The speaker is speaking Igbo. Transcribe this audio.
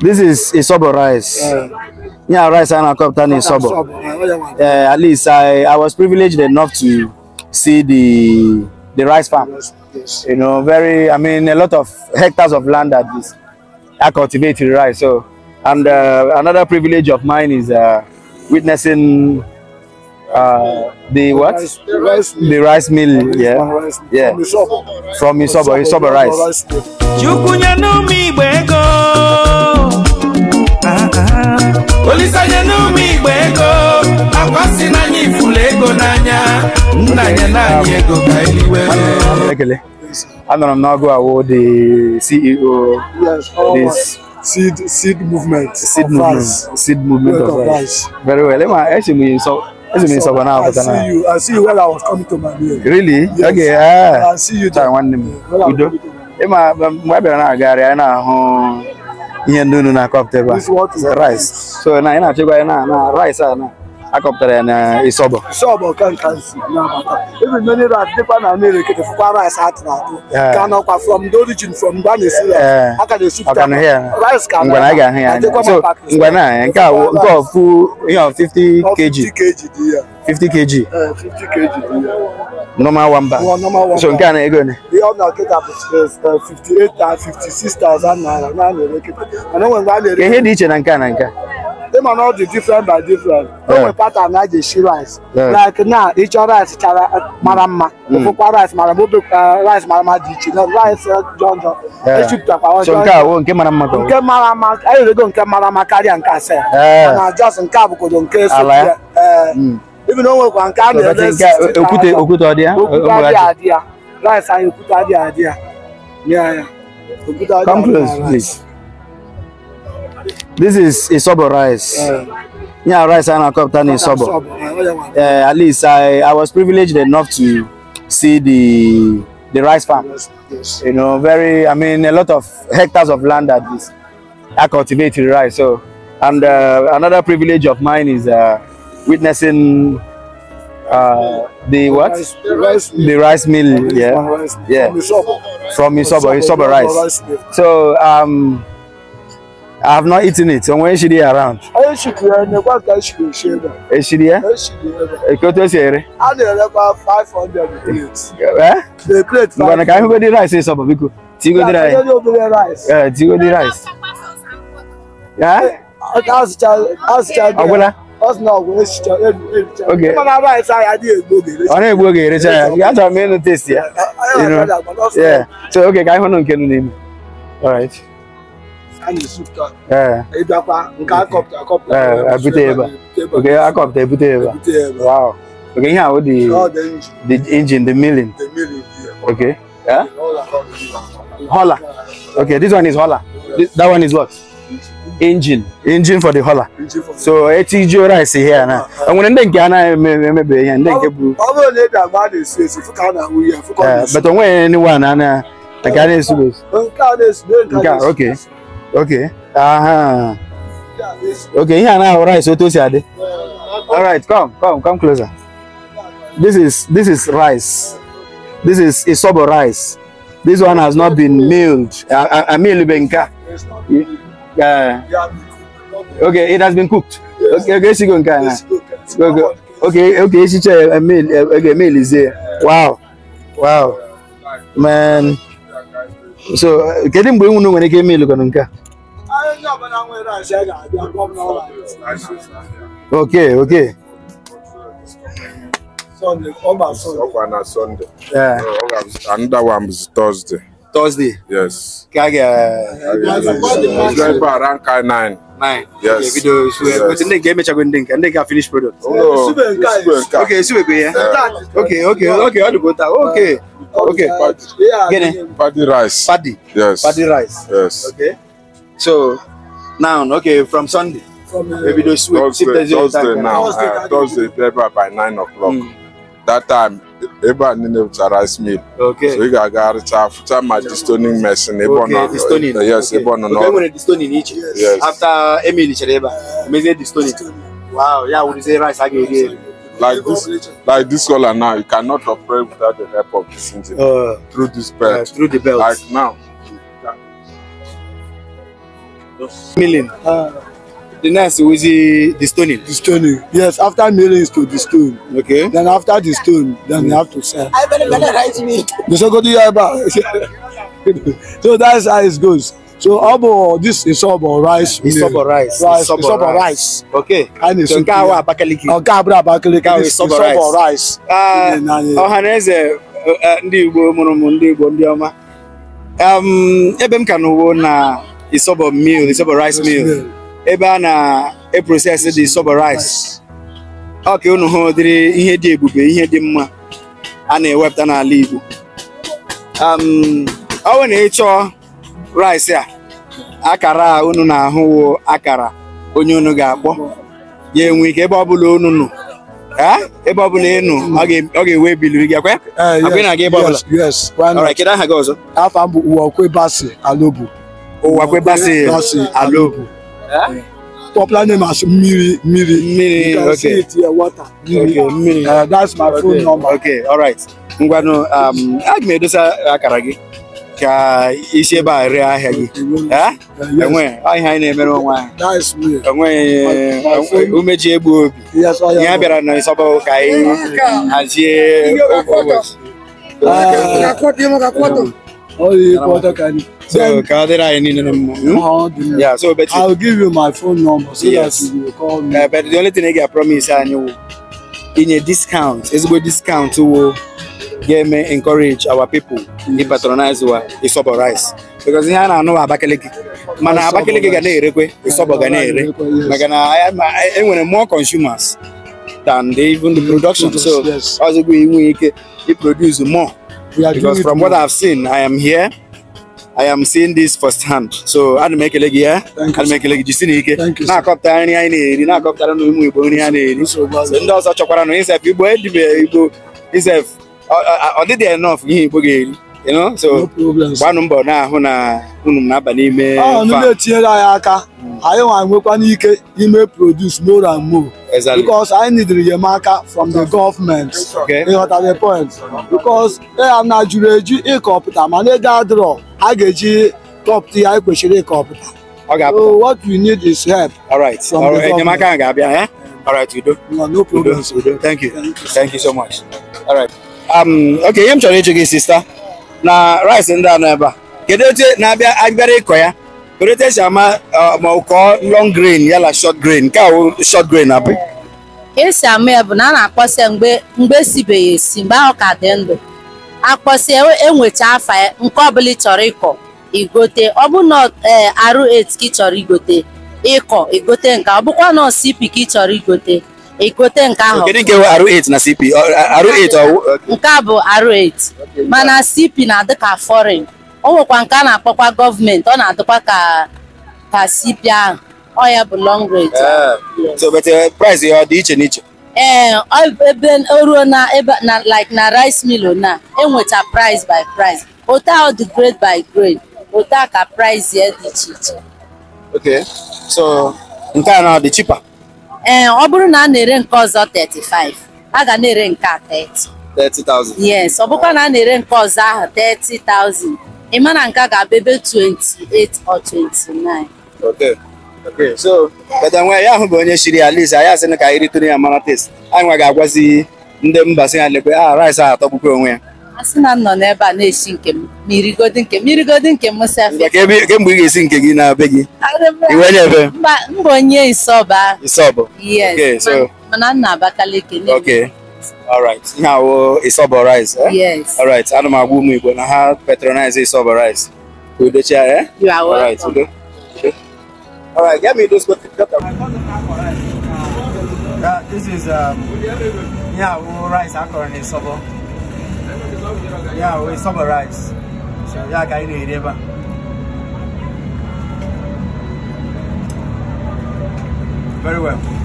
This is Isobo rice. yeah, rice and Kaptan Isobo. Uh, at least I, I was privileged enough to see the the rice farm. Yes, yes. You know, very, I mean, a lot of hectares of land that is I cultivated rice. So, and uh, another privilege of mine is uh, witnessing uh, the, the what? Rice, the rice, the rice mill. mill. Yeah, rice, yeah. From Isobo, Isobo rice. olisanye n'ume igbe ego akwasị n'anya ifula ego n'anya nnanya naanị ego ka eliwe anọrọ m n'ọgụ awụ the ceo seed seed movement seed movement seed movement of rice very well ema eche m so eche m sọba na apụta na i see you i see you when i was coming to my really yes. okay ah i see you there nwanne m udo ịma mgbe a na agagharị anyị ahụ ihe ndị unu na-akọpụta ebe a rice so na ị na-achịkwa na na rice a na akọpụtara ya na isobo isobo ka nka nsi na-abata ebe mmiri rat dịkwa na mmiri kete fụkwa rice atụ na atụ ka nọkwa from the origin from mgbe a na-esi ya aka na-esupụta rice ka ngwa na a ga-ahụ ya so ngwa na nke a nke ọfụ ihe 50 kg 50 kg 50 kg dị ya normal one bag. Well, normal one so nke a na-ego ne. Ihe ọ na-eketa bụ 58,000 naira na na-ereketa. Mana onwe mgbe a na-ere. Ihe dị iche na nke a na nke a. Ịma na ọ different by different. O nwe pattern a ga-esi rice. Like now. Each other rice chara uh, mara mma. Mm. Mm. Ofụkwa rice mara mma uh, rice mara mma dị iche. Na rice uh, jọn jọn. Echipụtakwa ọjọọ. So nke a wo nke mara mma ka Nke mara mma anyị erego nke mara mma karịa nke ase. Mana just nke a bụkodo nke so. come close please this is a isobo rice yeah rice and a na-akọpụta na Yeah, at least I, I was privileged enough to see the the rice farm you know very I mean a lot of hectares of land that is I cultivated rice so and uh, another privilege of mine is uh, witnessing Uh, the, what? the rice mill. The rice mill yeah. Rice Yeah. From Isobo. From Isobo, Isobo rice. so um, I have not eaten it. So when she be around? What she she Eshiria? Eshiria. I five hundred plates. Eh? The plate. But I can't go the rice Isobo because. Tigo the rice. Yeah, Tigo the rice. Yeah? Eh, that's the rice. Agwela ọ na-egbu oge erecha ya gị achọrọ m ịnụ testi ya so oge ka anyị hụnụ nke nụ n'ime ebute ebe oge akọpụta ebute ebe oge ihe ahụ dị engine the milling okay yeah? hola okay this one is hola that one is what engine engine for the hauler so eti ji ora ese here na uh-huh. I'm going to get emebe maybe. I'm going to get bụrụ na ị ga-agba na-esu esu fụ ka a na-ahụ ihe fụ but onwe ni wa na na nke a na-esu esu nke okay okay aha uh-huh. okay here, a na-ahụ rice otu o si all right come come come closer this is this is rice this is isobo rice this one has not been milled amilube nke a Yeah. Okay, it has been cooked. Yes. Okay, okay, she go and kind. Okay, okay, uh, uh, okay, check. a meal. Okay, meal is there. Wow, wow, man. So, getting bring one when I came meal, look on Okay, okay. Sunday, over Sunday. Sunday. Yeah. Oh, Another one is Thursday. Thursday. Yes. Kage. Driver around car nine. Nine. Yes. Okay, video. So yes. but then game chago ndink and then finish product. Oh, no. Okay, sube Okay. Okay. Okay, okay, okay. All the butter. Okay. Okay. Paddy. Uh, yeah. Paddy rice. Paddy. Yes. Paddy rice. Yes. Okay. So now, okay, from Sunday. From uh, maybe those sweet Thursday, Thursday now. Thursday, uh, Thursday by nine o'clock. Mm. That time ebe a niile pụtara smil so ị ga-aga arịcha afụcha ma distoning mesin ebe ọ nọ yes ebe ọ nọ n'ọrụ enwere distoning yes. after emil chere ebe a mezie distoning wow ya wụrụzie rice a ga-eri eri like this like this color now you cannot operate without the help of this engine uh, through this belt uh, through the belt like now milling uh. The next was the, the stoning. The stoning. Yes, after milling is to the stone. Okay. Then after the stone, then mm. you have to sell. I better better write me. The second year back. So that's how it goes. So obo this is obo rice. It's obo rice. rice. It's obo rice. rice. Okay. And it's so nke awa Abakaliki. Oh, abúlé Abakaliki. It's obo rice. It's obo rice. Ọ̀hanaeze ah, eh, eh, ndị Igbo mụrụ m ndị Igbo ndị ọma. Um, ebe m ka n'uwo na isobo meal, isobo rice meal. ebe a na-eprosesi dị soba rice ọ ka unu hụ ụdịrị ihe dị ebube ihe dị mma a na-ewepụta n'ala Igbo um, ọ bụ na ịchọ rice a akara a unu na-ahụwo akara onye unu ga-akpọ ya enwe ike ebe ọbụla unu nụ, ebe ọbụla ị nụ ọ ga-ewe biliri gị akwa akwa ị na-aga ebe ọbụla ọra kedu aha gị ọzọ ụwa kwebasị alobu ụwa kwebasị alobu popular eh? name as Miri. Miri. Miri. okay. see it here, water. Miri. Okay, Miri. Uh, that's my okay. phone number. Okay, all right. Ngwanụ, um, uh, a ga edosa akara gị ka isi ebe a ree ahịa gị. Enwe ahịa anyị na-emere onwe anyị. Enweghị umeji egbu obi. Ihe bịara na Nsọba ka anyị hazie ụbọchị. So Kadira and number? Hmm? Yeah, so but I'll give you my phone number so yes. that you will call me. Uh, but the only thing I get promise and you in a discount, it's good discount to get me encourage our people yes. to patronize our isobo rice. Because here I know Abakaliki. Mana Abakaliki ga na-erekwe isobo ga na-ere. Maka na enwere more consumers than the, even the mm, production. Yes, so yes. also we we produce more. Because from what I've seen, I am here. I am seeing this firsthand. So I'll make ana m ekele gị ya ana m ekele gị jisi n'ike na-akọpụta nri anyị na-eri na-akọpụtara na ụmụ Igbo nri ha na-eri ndị ọzọ chọkwara na isef Igbo edibe Igbo isef ọ dịdị enough ihe Igbo ga-eri you know so gbanụ mbọ na-ahụ na unu na-aba n'ime ọ ah, na etinyere anyị aka hmm. anyị nwa nwekwa n'ike ime produce more and more because I need the enyemaka from the government Okay. You ịghọta the point because ya na juru eju ịkọpụta mana ego adịrọ a ga-eji kọpụta ihe anyị kwesịrị so what we need is help all right All enyemaka ahụ ga-abịa eh? ya all right do. no problem udo thank you thank you so much all right um okay I'm m to ịjụ sister. na rice ndị a nọ ebe a kedu etu na-abịa abịara ịkọ ya kedu etu esi ama ma kọọ long grain yala short grain nke ahụ short grain abụ esi ama ya bụ na a na-akpọsịa mgbe mgbe esibeghị esi mgbe ahụ ka dị ndụ akpọsịa enwecha afa ya nke ọbụla ị chọrọ ịkọ igote ọ bụ na e, arụ et ka ị chọrọ igote ịkọ igote nke ọ bụkwa na osi ị chọrọ igote egote nke ahụ kedu nke R8 na CP R8 nke a bụ R8 mana CP na-adị ka foreign o nwekwa nke a na-akpọkwa gọọmenti ọ na-adịkwa ka ka CP ahụ ọ ya bụ long range eh, so but eh, price ya ọ dị iche n'iche ee eh, ebe ruo na ebe na like na rice mill na enweta price by price otu ọ dị grade by grade otu a ka price ya dị iche iche so nke a na ọ dị ee eh, ọ bụrụ na a na-ere nke ọzọ 35 a ga na-ere nke a 30 30,000 yes ọ bụkwa na a na-ere nke ọzọ ahụ 30,000 ị ma na nke a ga-abụ ebe 28 or 29 okay okay so bata nwa ya ahụ bụ onye shiri ya list anyị asị na ka anyị ritụrụ ya mara test anyị nwa ga-agwazi ndị mba si ya lekwe a ah, rice ahụ atọgbukwa onwe ya asị na m nọ n'ebe a na-esi nke m ma irigodi nke m irigodi nke m sefia kemgbe ị ga-esi nke gị na be gị iwenye ebe mba onye isọba isọba yes Okay, so. mana nna abakaliki okay alright ihe awụ isọba rice eh? yes alright ana m agwa ụmụ igbo na ha patronize isọba rice ka udochia ya alright udo alright get me those Uh, this is um, yeah, rice akọrọ na isọbọ yeah, we summarize. So yeah, I you it Very well.